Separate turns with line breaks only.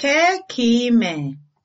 kee ka ị mee